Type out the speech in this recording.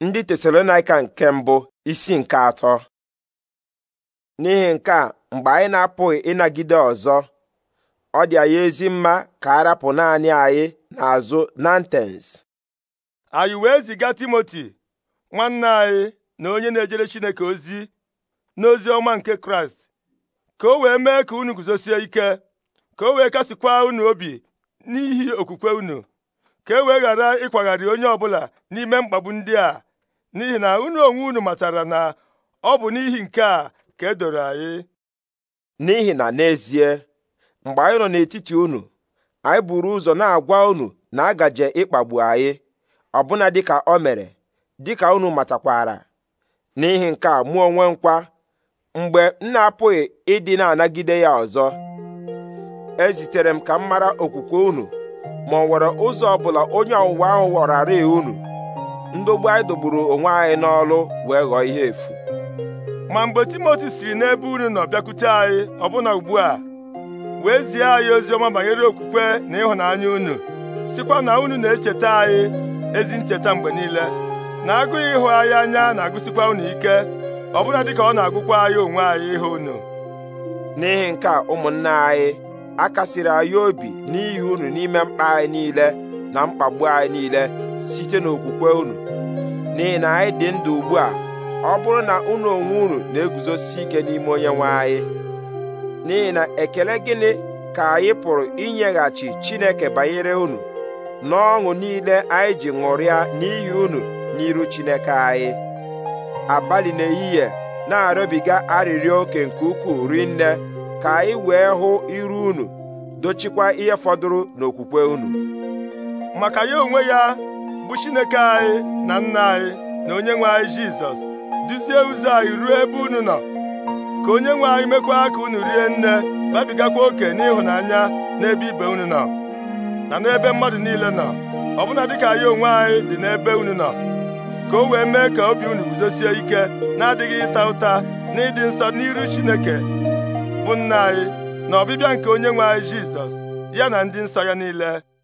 ndị tesalonaika nke mbụ isi nke atọ n'ihi nke a mgbe anyị na-apụghị ịnagide ọzọ ọ dị anyị ezi mma ka a rapụ naanị anyị n'azụ nantens anyị wee ziga timoti nwanne anyị na onye na-ejere chineke ozi n'ozi ọma nke kraịst ka o wee mee ka unu guzosie ike ka o wee kasịkwa unu obi n'ihi okwukwe unu ka e wee ghara ịkwagharị onye ọbụla n'ime mkpagbu ndị a n'ihi na unu onwe unu matara na ọ bụ n'ihi nke a ka edoro anyị n'ihi na n'ezie mgbe anyị nọ n'etiti unu anyị buru ụzọ na-agwa unu na agaje ịkpagbu anyị ọbụna dịka o mere dịka unu matakwara n'ihi nke a mụ onwe nkwa mgbe m na-apụghị ịdị na-anagide ya ọzọ ezitere m ka m mara okwukwe unu ma ọ nwere ụzọ ọbụla onye ọwụwa ahụ ghọrarị unu ndogbu anyị dogburu onwe anyị n'ọlụ wee ghọọ ihe efu ma mgbe timoti siri n'ebe unu nọ bịakwute anyị ọbụna ugbu a wee zie anyị ozi ọma banyere okwukwe na ịhụnanya unu sikwa na unu na-echeta anyị ezi ncheta mgbe niile na agụghị ịhụ anyị anya na-agụsikwa unu ike ọbụna dịka ọ na-agụkwa anyị onwe anyị ịhụ unu n'ihi nke a ụmụnna anyị akasiri anyị obi n'ihi unu n'ime mkpa anyị niile na mkpagbu anyị niile site n'okwukwe unu n'ihi na anyị dị ndụ ugbu a ọ bụrụ na unu onwe unu na-eguzosi ike n'ime onye nwe anyị n'ihi na ekele gịnị ka anyị pụrụ inyeghachi Chineke banyere unu n'ọṅụ niile anyị ji ṅụrịa n'ihi unu n'iru Chineke anyị abalị n'ehihie na-arịọbiga arịrịọ oke nke ukwuu rinne ka anyị wee hụ iru unu dochikwa ihe fọdụrụ n'okwukwe unu maka ya onwe ya bụ Chineke anyị na nna anyị na onye nwe anyị Jizọs duzie ụzọ anyị ruo ebe unu nọ ka onye nwe anyị mekwa ka unu rie nne babigakwa oke n'ịhụnanya n'ebe ibe unu nọ na n'ebe mmadụ niile nọ ọbụna dịka ya onwe anyị dị n'ebe unu nọ ka o wee mee ka obi unu guzosie ike na-adịghị ịta ụta na ịdị nsọ n'iru Chineke bụ nna anyị na ọbịbịa nke onye nwe anyị Jizọs ya na ndị nsọ ya niile